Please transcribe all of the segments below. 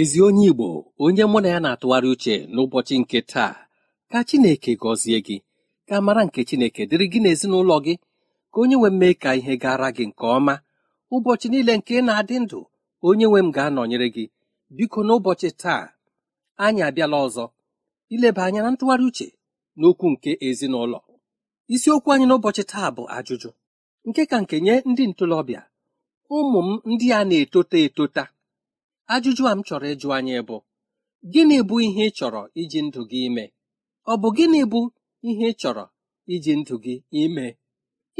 ezi onye igbo onye mụ na ya na-atụgharị uche n'ụbọchị nke taa ka chineke gọzie gị ka mara nke chineke dịrị gị n'ezinụlọ gị ka onye nwe m mee ka ihe gara gị nke ọma ụbọchị niile nke na-adị ndụ onye nwe m ga-anọnyere gị biko n'ụbọchị taa anyị abịala ọzọ ileba anya na ntụgharị uche n'okwu nke ezinụlọ isiokwu anyị n'ụbọchị taa bụ ajụjụ nke ka nke nye ndị ntorobịa ụmụ m ndị a na-etota etota ajụjụ a m chọrọ ịjụ anyị bụ gịnị bụ ihe ị chọrọ iji ndụ gị ime ọ bụ gịnị bụ ihe ị chọrọ iji ndụ gị ime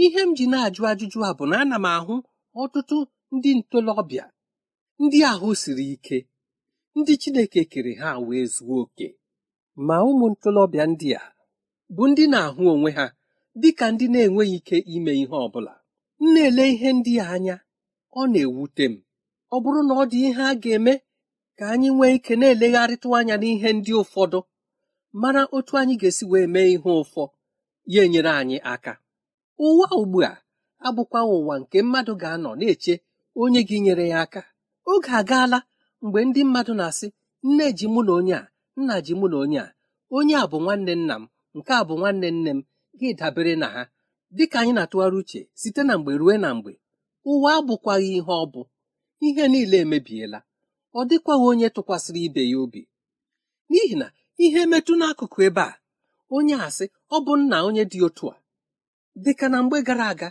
ihe m ji na-ajụ ajụjụ a bụ na ana m ahụ ọtụtụ ndị ntolobịa, ndị ahụ siri ike ndị Chineke kere ha wee zuo oke ma ụmụ ntolobịa ndị a bụ ndị na-ahụ onwe ha dị ka ndị na-enweghị ike ime ihe ọ bụla m na-ele ihe ndị a anya ọ na-ewute m ọ bụrụ na ọ dị ihe a ga-eme ka anyị nwee ike na-elegharịtụ anya n'ihe ndị ụfọdụ mara otu anyị ga-esi wee mee ihe ụfọ ya enyere anyị aka ụwa ugbu a abụkwa ụwa nke mmadụ ga-anọ na-eche onye gị nyere ya aka oge agaala mgbe ndị mmadụ na-asị nne ji mụ na onye a nna ji mụ na onye a onye a bụ nwanne nna m nke a bụ nwanne nne m gị dabere na ha dịka anyị na-atụgharị uche site na mgbe ruo na mgbe ụwa abụkwaghị ihe ọ bụ ihe niile emebiela ọ dịkwaghị onye tụkwasịrị ibe ya obi n'ihi na ihe metụ n'akụkụ ebe a onye asị ọ bụ nna onye dị otu a dịka na mgbe gara aga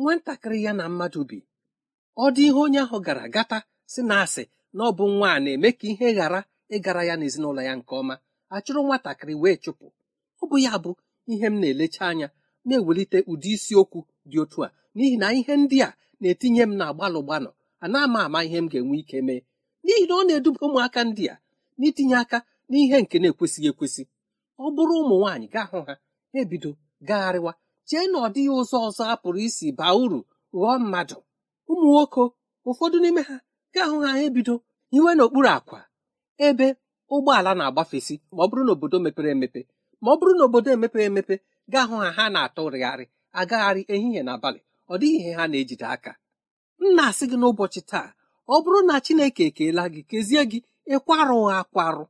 nwatakịrị ya na mmadụ bi ọ dị ihe onye ahụ gara gata si na asị na ọ bụ nwa a na-eme ka ihe ghara ịgara ya n'ezinụlọ ya nke ọma achụrụ nwatakịrị wee chụpụ ọ bụ ya bụ ihe m na-elecha anya na-ewelite ụdị isiokwu dị otu a n'ihi na ihe ndị a na-etinye m na gbalụ gbanọ ana ama ama ihe m ga-enwe ike mee n'ihi na ọ na-eduba ụmụaka ndị a n'itinye aka n'ihe nke na-ekwesịghị ekwesị ọ bụrụ ụmụ nwaanyị gaa hụ ha ebido gagharịwa chee na ọ dịghị ụzọ ọzọ a pụrụ isi baa uru ghọọ mmadụ ụmụ nwoke ụfọdụ n'ime ha gaa hụ ha ebido hiwe n'okpuru akwa ebe ụgbọala na-agbafesi ma ọ bụrụ na obodo mepere emepe ma ọ bụrụ na obodo emepere emepe gaa hụ ha ha na-atụrịgharị agagharị ehihie na abalị ọ dịghị ihe ha na-ejide aka m na-asị gị n'ụbọchị taa ọ bụrụ na chineke ekeela gị kezie gị ịkwarụghị akwarụ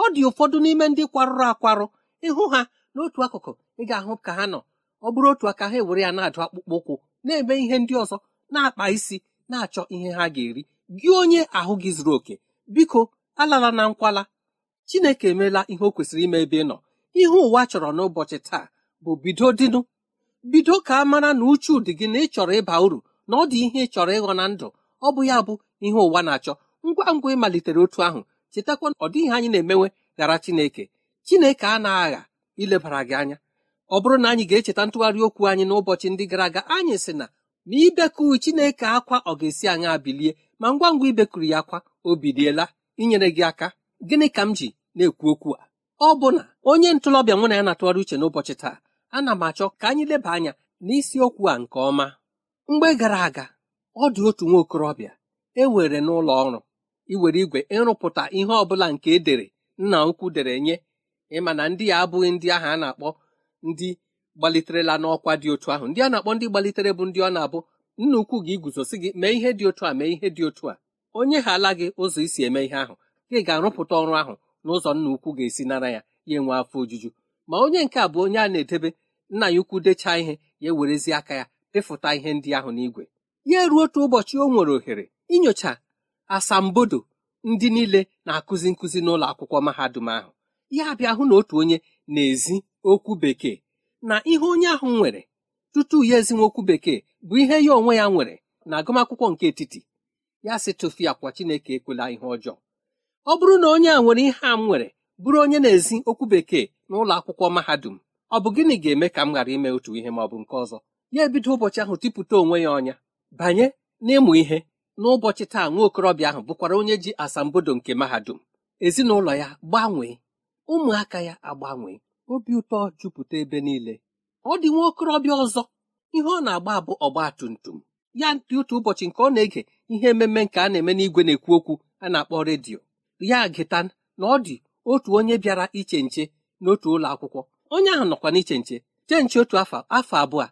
ọ dị ụfọdụ n'ime ndị kwarụrụ akwarụ ịhụ ha n'otu akụkụ ị ga-ahụ ka ha nọ ọ bụrụ otu aka ha ewere ya na-adụ akpụkpọ ụkwụ na-eme ihe ndị ọzọ na-akpa isi na-achọ ihe ha ga-eri gị onye ahụ gị zuru oke biko alala na nkwala chineke emeela ihe o kwesịrị ime ebe ị nọ ihe ụwa chọrọ n'ụbọchị taa bụ bido dịnụ bido ka a mara na uchu dị gị na ị chọrọ ịba uru na ọ dị ihe ị chọrọ ịghọ na ndụ ọ bụ ya bụ ihe ụwa na-achọ ngwa ngwa ịmalitere otu ahụ chetakwa ọ dịghị anyị na-emewe ghara Chineke Chineke a na-agha ilebara gị anya ọ bụrụ na anyị ga-echeta ntụgharị okwu anyị n'ụbọchị ndị gara aga anyị sị na ma ibekuru Chineke akwa ọ ga-esi anyị bilie ma ngwa ngwa ibekuru ya akwa o biliela inyere gị aka gịnị ka m ji na-ekwu okwu a ọ bụ na onye ntolọbịa nwe na ya na-atụgharị uche n'ụbọchị taa ana m achọ ka anyị leba anya n'isiokwu a nke ọma mgbe gara aga ọ dị otu nwa okorobịa ewere n'ụlọ ọrụ iwere igwe ịrụpụta ihe ọbụla nke edere nna ukwu dere nye ịma na ndị ya abụghị ndị ahụ a na-akpọ ndị gbaliterela n'ọkwa dị otu ahụ ndị a na-akpọ ndị gbalitere bụ ndị ọ na-abụ nna ukwu gị iguzosi gị mee ihe dị otu a mee ihe dị otu a onye ha ala gị ụzọ isi eme ihe ahụ gị ga-arụpụta ọrụ ahụ n'ụzọ nna ukwu ga-esi nara ya ya enwe afọ ojuju ma onye nke a bụ onye a na-edebe nna ya ukwu dechaa ihe ya ewerezie aka ya ịfụta ihe ndị ahụ n'igwe ya ruo otu ụbọchị o nwere ohere inyocha asambodo ndị niile na-akụzi nkụzi n'ụlọ akwụkwọ mahadum ahụ ya bịa hụ na otu onye na-ezi okwu bekee na ihe onye ahụ nwere tutu ya ezinwe okwu bekee bụ ihe ya onwe ya nwere na agụmakwụkwọ nke etiti ya si tụfu ya kwa Chineke ekwela ihe ọjọọ ọ bụrụ na onye a nwere ihe a m nwere bụrụ onye na-ezi okwu bekee n'ụlọ akwụkwọ mahadum ọ bụ gịnị ga-eme ka m ghara ime otu ihe ma ọ bụ nke ọzọ ya ebido ụbọchị ahụ tipụta onwe ya ọnya banye n'ịmụ ihe n'ụbọchị taa nwa okorobịa ahụ bụkwara onye ji asambodo nke mahadum ezinụlọ ya gbanwee ụmụaka ya agbanwee obi ụtọ jupụta ebe niile ọ dị nwa okorobịa ọzọ ihe ọ na-agba bụ ọgba tum tum ya dị otu ụbọchị nke ọ na-ege ihe ememe nke a na-eme n'igwe na-ekwu okwu a na-akpọ redio ya gịta na ọ dị otu onye bịara iche nche n'otu ụlọ akwụkwọ onye ahụ nọkwa n'iche nche chee nche otu afọ afọ abụọ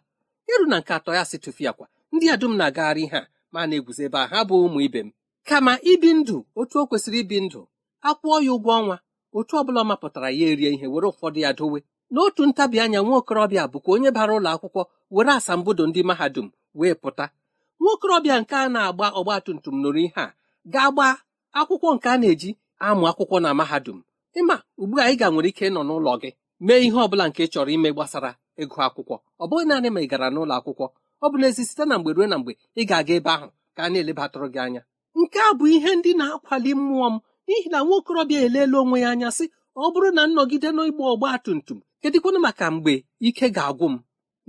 iru na nke atọ ya si tụfiakwa ndị a dum na-agagharị ha ma na-eguzo ebe a ha bụ ụmụ ibe m kama ibi ndụ otu o kwesịrị ibi ndụ akwụọ ya ụgwọ ọnwa otu ọ bụla ọ mapụtara ya erie ihe were ụfọdụ ya dowe n'otu ntabi anya nwa okorobịa bụkwa onye bara ụlọ akwụkwọ were asambodo ndị mahadum wee pụta nwa okorobịa nke a na-agba ọgba tum nụrụ ihe a ga-agba akwụkwọ nke a na-eji amụ akwụkwọ na mahadum ịma ugbu a ị ga nwere ike nọ n'ụlọ gị mee ihe ọ bụla nke chọrọ ime gbasara ịgụ akwụkwọ ọ bụghị naanị ma ị gara n'ụlọ akwụkwọ ọ bụ n'ezi site na mgbe ruo na mgbe ị ga-aga ebe ahụ ka a na-elebatụrụ gị anya nke a bụ ihe ndị na-akwali mmụọ m n'ihi na nwa okorobịa eleela onwe ya anya sị ọ bụrụ na nnọgide n'ịgba ọgba tum tum kedịkwana maka mgbe ike ga-agwụ m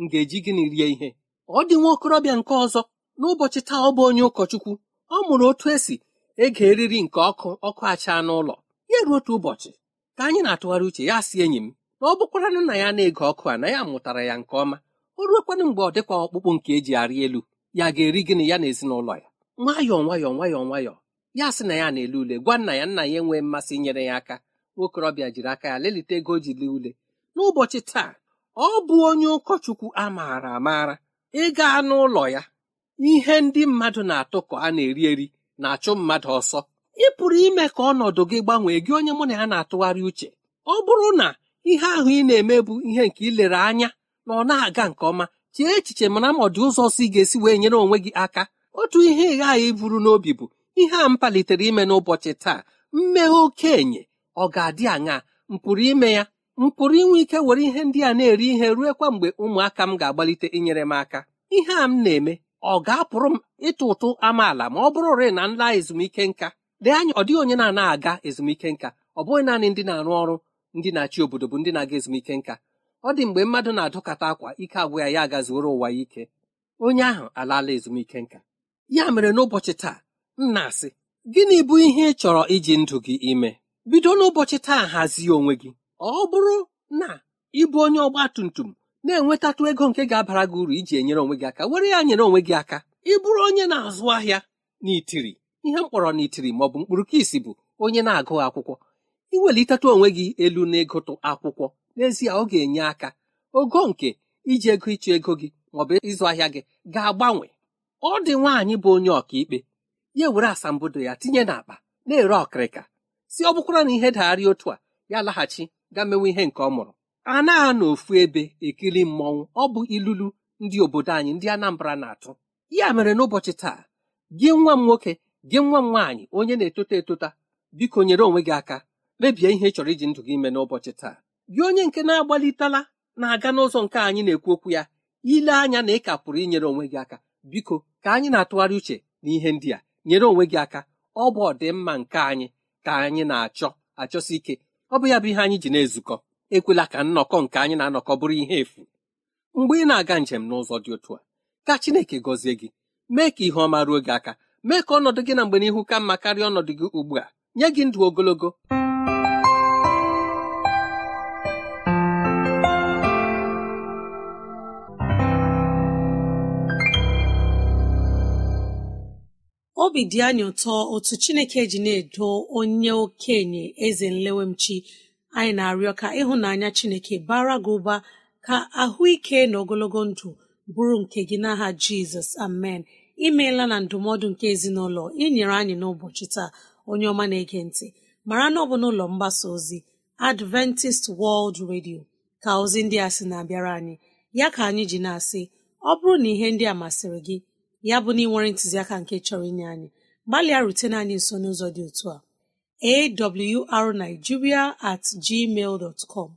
m ga-eji gịnị rie ihe ọ dị nwa okorobịa nke ọzọ n'ụbọchị taa ọ bụ onye ụkọchukwu ọ mụrụ otu esi ege eriri nke ọkụ ọkụ achaa n'ụlọ ya ruo otu ụbọchị ka anyị na-atụgharị uche ya si enyi m na ọ bụkwaranụ na ya na-ege ọkụ a na ya mụtara ya nke ọma o ruokwanụ mgbe ọ dịkwa ọkpụkpụ nke eji arị elu ya ga-eri gịnị ya na ezinụlọ ya nwayọọ nwayọọ nwayọọ nwayọọ ya sị na ya na-ele ule gwa nna ya nna ya enwee mmasị inyere ya aka nwokorobịa jiri aka ya lelite ego ji lee ule n'ụbọchị taa ọ bụ onye ụkọchukwu a maara amaara ịga n'ụlọ ya ihe ndị mmadụ na-atụ ka a na-eri eri na-achụ mmadụ ọsọ ị pụrụ ime ka ọnọdụ gị gbanwee gị onye mụ na ya na-atụgharị uche ọ bụrụ na ihe ahụ ị na-eme bụ ihe nke lere anya na ọ na-aga nke ọma chee echiche mana ma ọ dị ụzọ si ga-esi wee nyere onwe gị aka otu ihe ị ghaghị iburu n'obi bụ ihe a m palitere ime n'ụbọchị taa mmeghe okenye ọ ga-adị aṅa m pụrụ ime ya m pụrụ inwe ike were ihe ndị a na-eri ihe ruo kwa mgbe ụmụaka m ga-agbalite inyere m aka ihe a m na-eme ọ ga-apụrụ m ịtụ ụtụ amaala ma ọ bụrụrị na nla ezumike nka lee anya ọ dịghị onye na-ana aga ezumike nka ọ bụghị naanị ndị na-arụ ọrụ ndị na-achị obodo bụ ndị na-aga ezumike nka ọ dị mgbe mmadụ na-adọkata akwa ike agwụ ya ya agazuoro ụwa ya ike onye ahụ alaala ezumike nka ya mere n'ụbọchị taa nna na-asị gịnị bụ ihe ị chọrọ iji ndụ gị ime bido n'ụbọchị taa hazie onwe gị ọ bụrụ na ịbụ onye ọgba tum tum na-enwetatụ ego nke ga-abara gị uru iji enyere onwe gị aka were ya nyere onwe gị aka ị bụrụ onye na-azụ ahịa n'itiri ihe m kpọrọ n'itiri ma ọ bụ mkpụrụ ka isi bụ onye na agụghị akwụkwọ iwelitatụ onwe gị elu n'ịgụtụ akwụkwọ n'ezie ọ ga-enye aka ogo nke iji ego ịchụ ego gị maọbụ ịzụ ahịa gị ga-agbanwe ọ dị nwaanyị bụ onye ọkaikpe ya were asambodo ya tinye n'akpa na-ere ọkịrịka si ọ bụkwara na ihe dagharị otu a ya laghachi ga mewe ihe nke ọ mụrụ a na ofu ebe ekiri mmọnwụ ọ bụ ilulu ndị obodo anyị ndị Anambra na-atụ ya mere n'ụbọchị taa gị nwa m nwoke gị nwa m nwaanyị onye na-etota etota biko nyere onwe gị aka mebie ihe ị chọrọ iji ndụ gị ime n'ụbọchị taa gị onye nke na-agbalitela na-aga n'ụzọ nke anyị na-ekwu okwu ya ile anya na ị ka pụrụ inyere onwe gị aka biko ka anyị na-atụgharị uche na ihe ndị a nyere onwe gị aka ọ bụ ọdịmma nke anyị ka anyị na-achọ achọsi ike ọ bụ ya bụ ihe anyị ji na-ezukọ ekwela ka nnọkọ nke anyị na-anọkọ bụrụ ihe efu mgbe ị na-aga njem n'ụzọ dị otu a ka Chineke gọzie gị mee ka ihe ọma ruo gị aka mee ka ọnọdụ gị na mgbe n'ihu ka mma karịa ọnọdụ gị ugbu a nye gị ndụ ogologo obi dị anyị ụtọ otu chineke ji na-edo onye okenye eze nlewemchi anyị na-arịọ ka ịhụnanya chineke bara gị ụba ka ahụike na ogologo ndụ bụrụ nke gị n'aha jizọs amen imeela na ndụmọdụ nke ezinụlọ inyere anyị n'ụbọchị taa onye ọma na-ege ntị mara na ọ bụ n'ụlọ mgbasa ozi adventist world radio ka ozi ndị a sị na-abịara anyị ya ka anyị ji na-asị ọ bụrụ na ihe ndị a masịrị gị ya bụ na ị nwere ntụziaka nke chọrọ inye anyị gbalịa rutene anyị nso n'ụzọ dị otu a awrnigeria at gmail dot com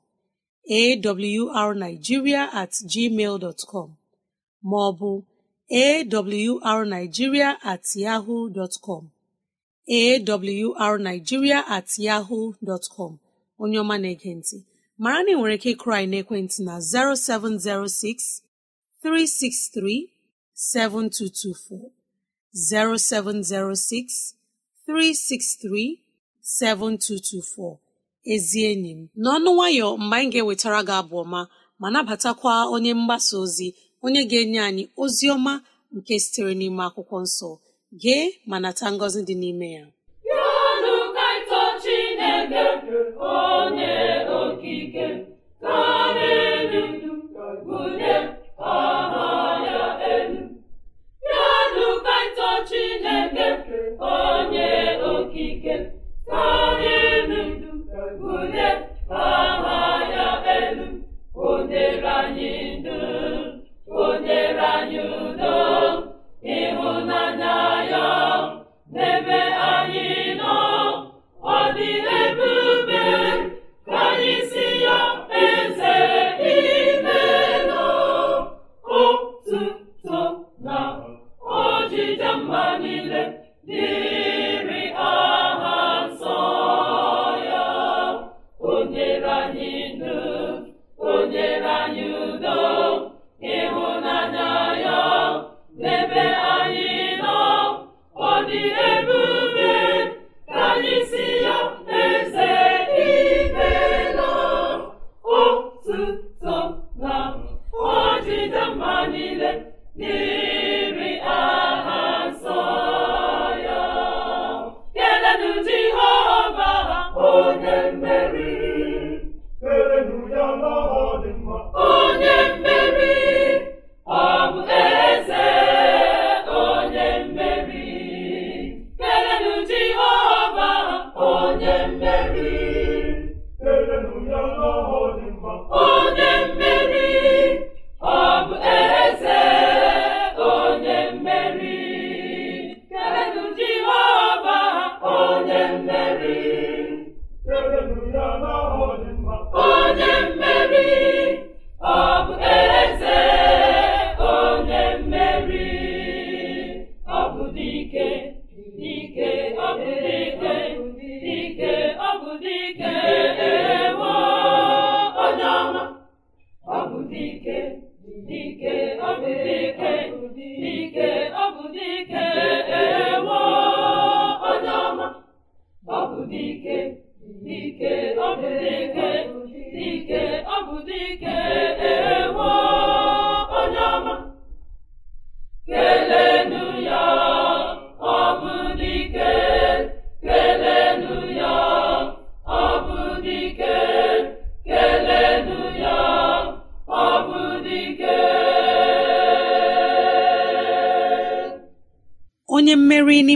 awrnigeria at gmail dot com ma ọ bụ awrnigeria at yahoo dot com awrnigeria at yahoo dot com onye ọma na-ege ntị mara na ị nwere ike ịkụrụ anyị na 0706 363 7224 0706 363 7224 ezi enyi m n'ọnụ nwayọ mgbe anyị ga-ewetara gị abụ ọma ma nabatakwa onye mgbasa ozi onye ga-enye anyị ozi ọma nke sitere n'ime akwụkwọ nsọ gee ma nata ngọzi dị n'ime ya onye okike ka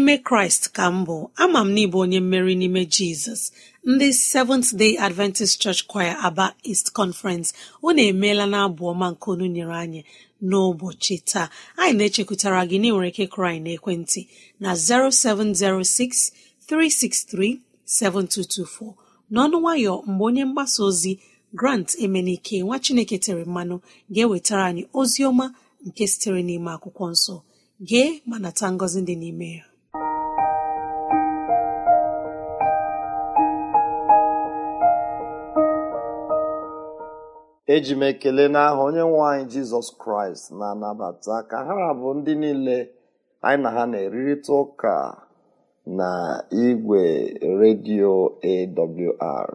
n'ime kraịst ka m bụ ama m n'ịbụ onye mmeri n'ime jizọs ndị seventh day adventist church choir aba east conference unu emeela na abụ ọma nke onye nyere anyị n'ụbọchị taa anyị na-echekwutara gị na ike kraị na ekwentị na 0706 n'ọnụ nwayọ mgbe onye mgbasa ozi grant emenike nwa chineke tere mmanụ ga-ewetara anyị ozi ọma nke sitere n'ime akwụkwọ nsọ gee ma nata ngọzi dị n'ime ya eji m ekele n'aha onye nwe anyị jizọs kraịst na-anabata ka ha bụ ndị niile anyị na ha na-erita ụka na igwe redio awr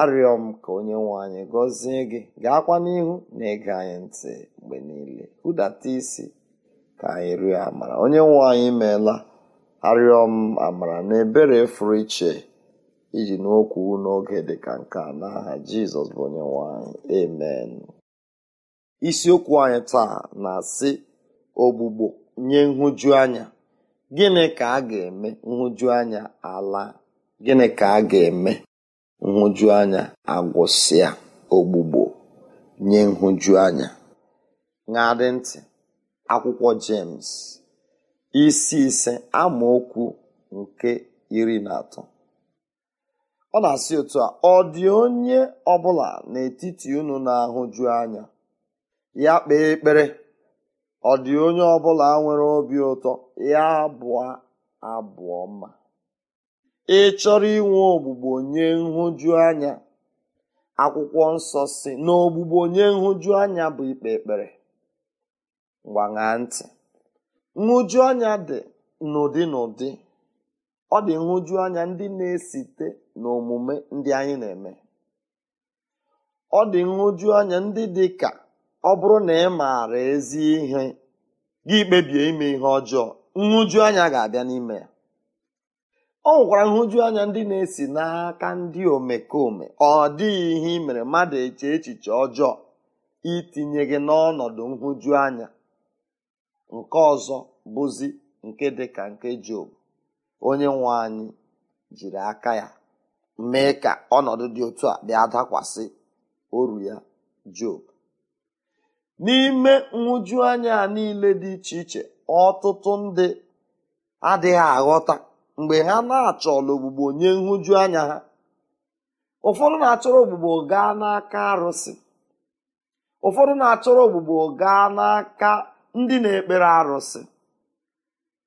arịọ m ka onye nwe anyị gọzie gị gaakwa n'ihu na ịga anyị ntị mgbe niile hụdata isi ka anyị rịọ amara onye nwe anyị meela arịọ m amara na ebere fụrụ iche iji n'okwu n'oge dị ka nke a n'aha jizọs bụ onye nwanyị amen isiokwu anyị taa na-asị ogbugbo nye nhụjuanya," anya gịnị ka a ga-eme nhụjuanya anya ala gịnị ka a ga-eme nhụjuanya anya agwụsịa ogbugbo nye nhụjuanya? anya ṅadị ntị akwụkwọ James isi ise amaokwu nke iri na atọ ọ na-asị otu a ọ dị onye ọbụla n'etiti unu na-ahụju anya ya kpee ekpere ọ dị onye ọbụla nwere obi ụtọ ya bụọ abụọ mma. ị chọrọ inwe ogbugbo nye nhụju anya akwụkwọ nsọ si na ogbugbo nye nhụju anya bụ ikpe ekpere gbaṅa ntị nhụju dị n'ụdị n'ụdị ọ dị nhụju ndị na-esite na omume ndị anyị na-eme ọ dị nhụju anya ndị dị ka ọ bụrụ na ị maara ezi ihe gị kpebie ime ihe ọjọọ nhụju anya ga-abịa n'ime ya ọ nwekwara nhụju anya ndị na-esi n'aka ndị omekome ọ dịghị ihe ị mere mmadụ eche echiche ọjọọ itinye gị n'ọnọdụ nhụju anya nke ọzọ bụzi nke dị ka nke Job onye nwe anyị jiri aka ya mee ka ọnọdụ dị otu a bịa dakwasị oru ya job n'ime anya niile dị iche iche ọtụtụ ndị adịghị aghọta mgbe ha na-achọla ogbugbo nye anya ha ụfọdụ na-achọrọ ogbugbo gaa n'aka arụsị ụfọdụ na-achọrọ ogbugbo gaa n'aka ndị na-ekpere arụsị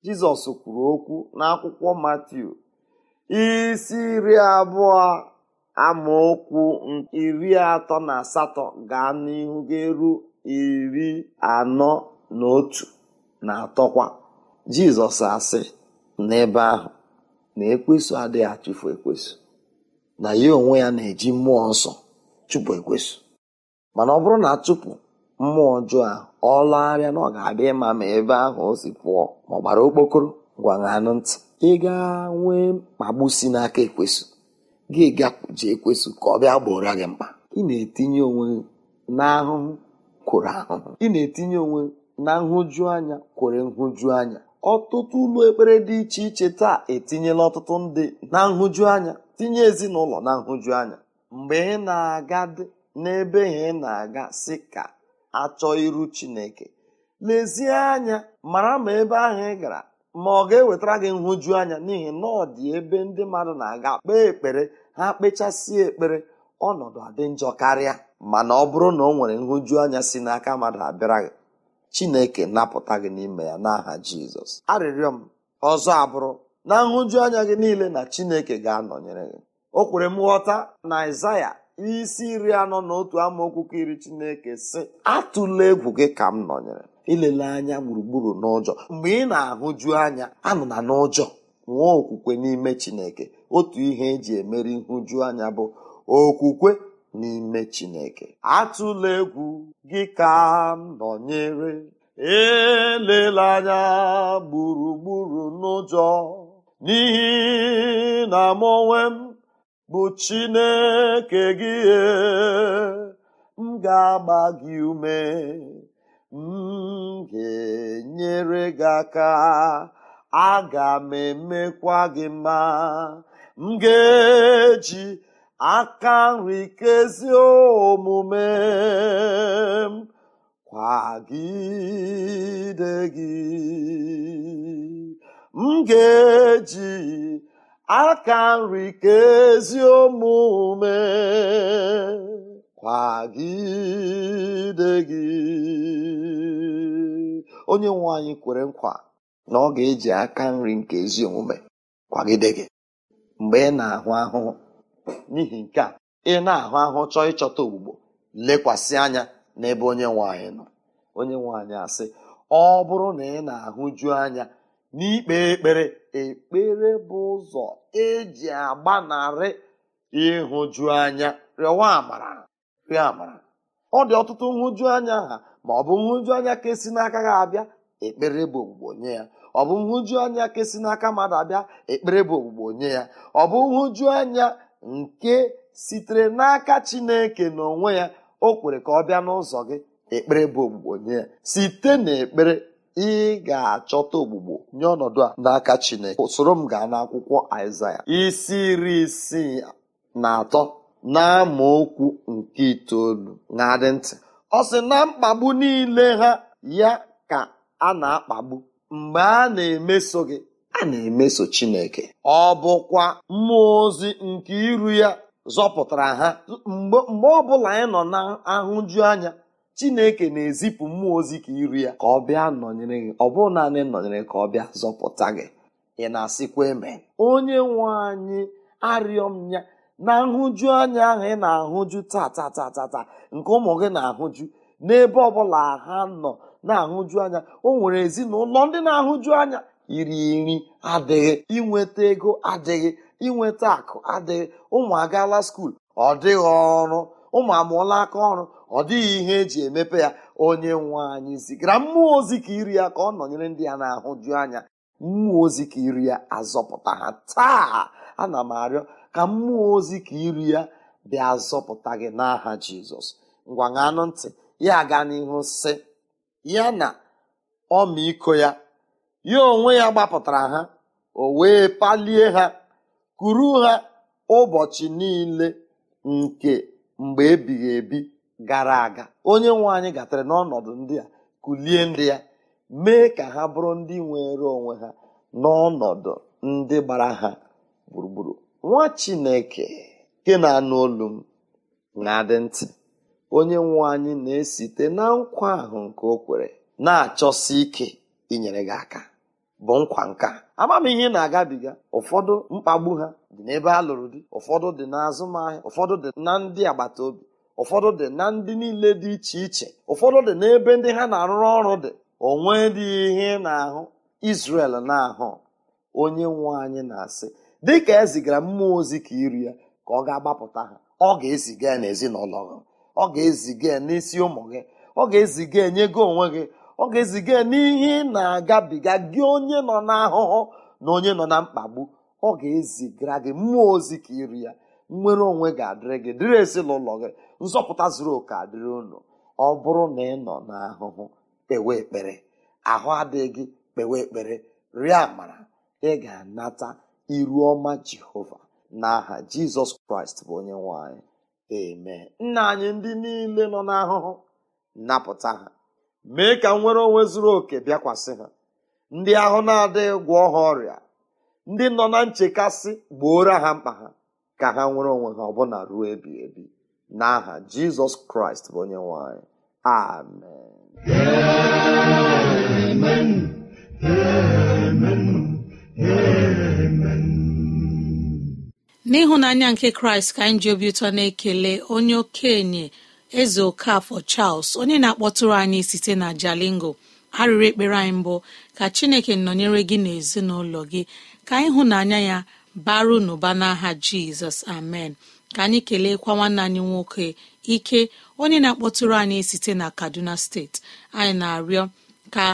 jizọs kwuru okwu n'akwụkwọ matiu isi iri abụọ amaokwu iri atọ na asatọ gaa n'ihu ga-eru iri anọ na otu na atọkwa jizọs asị n'ebe ahụ na ekwesu adịghị achụfu ekwesu na ya onwe ya na-eji mmụọ nsọ chụpụ ekwesu mana ọ bụrụ na achụpụ mmụọ ọjọọ ahụ ọ lagharịa na ọ ga-adị mma ma ebe ahụ o si pụọ ma ọ gbara okpokoro gwaṅanụ ntị ị ga nwee mkpagbu si n'aka ekwesụ gị gaji ekwesụ ka ọ bịa gbora gị mkpa ị na-etinye onwe n'ahụhụ kwụrụ ahụhụ ị na-etinye onwe na nhụju anya kwere nhụju anya ọtụtụ ụlọ ekpere dị iche iche taa etinyela ọtụtụ ndị na nhụju anya tinye ezinụlọ na nhụju anya mgbe ị na-aga dị n'ebe ị na-aga si ka achọ iru chineke lezie anya mara ma ebe ahụ ị gara ma ọ ga-ewetara gị nhụju anya n'ihi na ọ dị ebe ndị mmadụ na-aga kpee ekpere ha kpechasịa ekpere ọnọdụ adị njọ karịa mana ọ bụrụ na ọ nwere nhụju anya si n'aka mmadụ abịara gị chineke napụta gị n'ime ya n'aha jizọs arịrịọ m ọzọ abụrụ na nhụju anya gị niile na chineke ga-anọnyere gị o kwere m ghọta na Aịzaya isi iri anọ na otu amaokwu ka iri chineke si atụla egwu gị ka m nọnyere ilele anya gburugburu n'ụjọ mgbe ị na-ahụju anya anụna n'ụjọ nwee okwukwe n'ime chineke otu ihe eji emere nhụju anya bụ okwukwe n'ime chineke atụla egwu gị ka m nọnyere elele anya gburugburu n'ụjọ n'ihi na m m bụ chineke gị m ga-agba gị ume m ga-enyere gị aka aga m emekwa gị mma m ga-eji aka nri omume m kwagide gị m ga-eji aka nri kezi omume kwagide gị onye nwe anyị kwere nkwa na ọ ga-eji aka nri nke ezi omume kwagide gị mgbe ị na-ahụ ahụhụ n'ihi nke a ị na-ahụ ahụhụ chọọ ịchọta ogbugbo lekwasị anya n'ebe onye nwe anyị nọ onye nwanyị anyị asị ọ bụrụ na ị na-ahụju anya n'ikpe ekpere ekpere bụ ụzọ eji agbanarị ịhụju anya rịọwa amara rịọ amara ọ dị ọtụtụ nhụju anya ha ma ọ bụ nhụju anya ka esi n'aka ha abịa ekpere bụ ogbugbo nye ya ọ bụ nhụju anya ka esi n'aka mmadụ abịa ekpere bụ ogbugbo nye ya ọ bụ nhụju anya nke sitere n'aka chineke n'onwe ya o kwere ka ọ bịa n'ụzọ gị ekpere bụ ogbugbo nye ya site n'ekpere ị ga-achọta ogbugbo nye ọnọdụ a n'aka chineke soro m gaa n'akwụkwọ aịzaya isi iri isii na atọ na okwu nke itoolu na-adị ntị ọ sị na mkpagbu niile ha ya ka a na-akpagbu mgbe a na-emeso gị a na-emeso Chineke ọ bụkwa mmụọ ozi nke iru ya zọpụtara ha mgbe ọbụla bụla anyị nọ ahụju anya Chineke na-ezipụ mmụọ ozi ka iru ya ka ọ bịa nọnyere gị ọ naanị nọnyere ka ọ bịa zọpụta gị ị na-asịkwa eme onye nwe anyị arịọ m ya na nhụju anya ahụ ị na-ahụju taa nke ụmụ gị na-ahụju n'ebe ọbụla ha nọ na-ahụju anya o nwere ezinụlọ ndị na-ahụju anya iri nri adịghị inweta ego adịghị inweta akụ adịghị ụmụ agaala skuul ọ dịghị ọrụ ụmụ amụọla aka ọrụ ọ dịghị ihe eji emepe ya onye nwe anyị zigara mmụọ ozi ka iri ya ka ọ nọnyere ndị ya na-ahụju anya mmụọ ozi ka iri ya azọpụta ha taa ana m arịọ ka mmụọ ozi ka iri ya bịa zọpụta gị n'aha jizọs ngwa ṅanụ ntị ya gaa n'ihu sị ya na ọmịiko ya ya onwe ya gbapụtara ha o wee palie ha kuru ha ụbọchị niile nke mgbe ebighị ebi gara aga onye nwe anyị gatara n'ọnọdụ ndị a kulie ndị ya mee ka ha bụrụ ndị nwere onwe ha n'ọnọdụ ndị gbara ha gburugburu nwa chineke nke na-anụ olu m na-adị ntị onye nwe anyị na-esite na nkwa ahụ nke o kwere na-achọsi ike inyere gị aka bụ nkwa nka ama m ihe na-agabiga ụfọdụ mkpagbu ha dị n'ebe a lụrụ di ụfọdụ dị n'azụmahịa ụfọdụ dị na ndị agbata obi ụfọdụ dị na ndị niile dị iche iche ụfọdụ dị n'ebe ndị ha na-arụrụ ọrụ dị onwe dị ihe ị na-ahụ Israel na-ahụ onye nwe anyị na-asị dịka e zigara mmụọ ozi ka iri ya ka ọ ga-agbapụta ha ọ ga-eziga n'ezinụlọ gị ọ ga-eziga n'isi ụmụ gị ọ ga-eziga enye gị onwe gị ọ ga-eziga n'ihe ị na-agabiga gị onye nọ n'ahụhụ na onye nọ na mkpagbu ọ ga-ezigara gị mmụọ ozi ka iri ya nnwere onwe ga-adịrị gị dịrị ezinụlọ gị nzọpụta zuru oke adịrị unu ọ bụrụ na ị nọ n'ahụhụ kpewe ekpere ahụ adịghị gị kpewe ekpere rie amara ị ga-anata iru ọma jehova n'aha jizọs kraịst bụ onye nwanyị. anyị nna anyị ndị niile nọ n'ahụhụ napụta ha mee ka nwere onwe zuru oke bịakwasị ha ndị ahụ na-adịghị gwọ ha ọrịa ndị nọ na nchekasị gbooro ha mkpa ha ka ha nwere onwe ha ọbụna ruo ebi ebi n'aha jizọs kraịst bụ onye nwanyị. amen n'ịhụnanya nke kraịst ka anyị ji obi ụtọ na-ekele onye okenye eze okafọ charles onye na-akpọtụrụ anyị site na jalingo arịrị ekpere anyị mbụ ka chineke nọnyere gị na n'ezinụlọ gị ka ịhụnanya ya baru n'ụba n'aha jizọs amen ka anyị keleekwa nwanne anyị nwoke ike onye na-akpọtụrụ anyị site na kaduna steeti anyị na-arịọ ka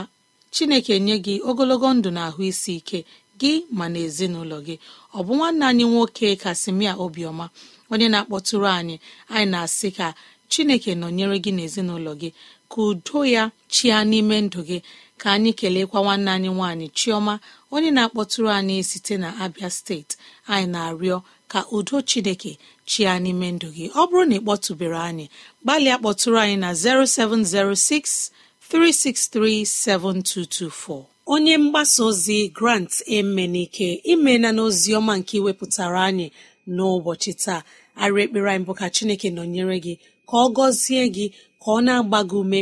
chineke nye gị ogologo ndụ na ahụ isi ike gị ma na ezinụlọ gị ọ bụ nwanne anyị nwoke kasimia obiọma onye na-akpọtụrụ anyị anyị na-asị ka chineke nọnyere gị n'ezinụlọ gị ka udo ya chia n'ime ndụ gị ka anyị keleekwa nwanne anyị nwanyị chioma onye na-akpọtụrụ anyị site na abia steeti anyị na-arịọ ka udo chineke chia n'ime ndụ gị ọ bụrụ na ị kpọtụbere anyị gbalịa kpọtụrụ anyị na 0706 7224. onye mgbasa ozi grant emenike imela n'ozi ọma nke iwepụtara anyị n'ụbọchị taa arị ekpere anyị bụ ka chineke nọnyere gị ka ọ gọzie gị ka ọ na-agba gị ume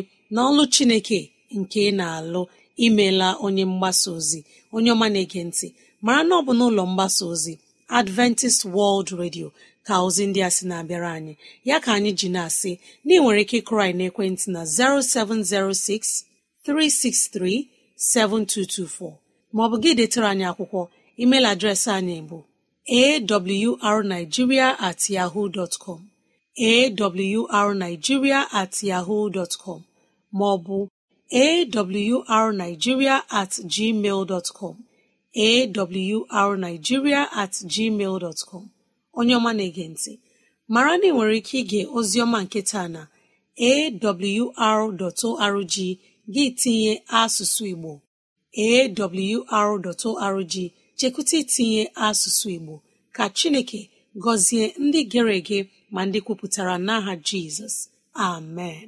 ọlụ chineke nke ị na-alụ imela onye mgbasa ozi onye ọma na-ege ntị mara na ọ bụ n'ụlọ mgbasa ozi adventist world radio ka ozi ndị a sị na-abịara anyị ya ka anyị ji na-asị na ị nwere ike ịkụrụ anyị na 0706 363 7224 maọbụ gị detere anyị akwụkwọ email adreesị anyị bụ awrnigeria at yahoo dot com at yahoo dot maọbụ awrnigeria at gmail dot com awrnigeria at gmail dot onye ọma na-ege ntị mara na ị nwere ike ige oziọma nketa na awr.org gị tinye asụsụ igbo awr.org chekwụta itinye asụsụ igbo ka chineke gọzie ndị gere ege ma ndị kwupụtara n'aha jizọs amen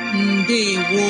ndị ndewo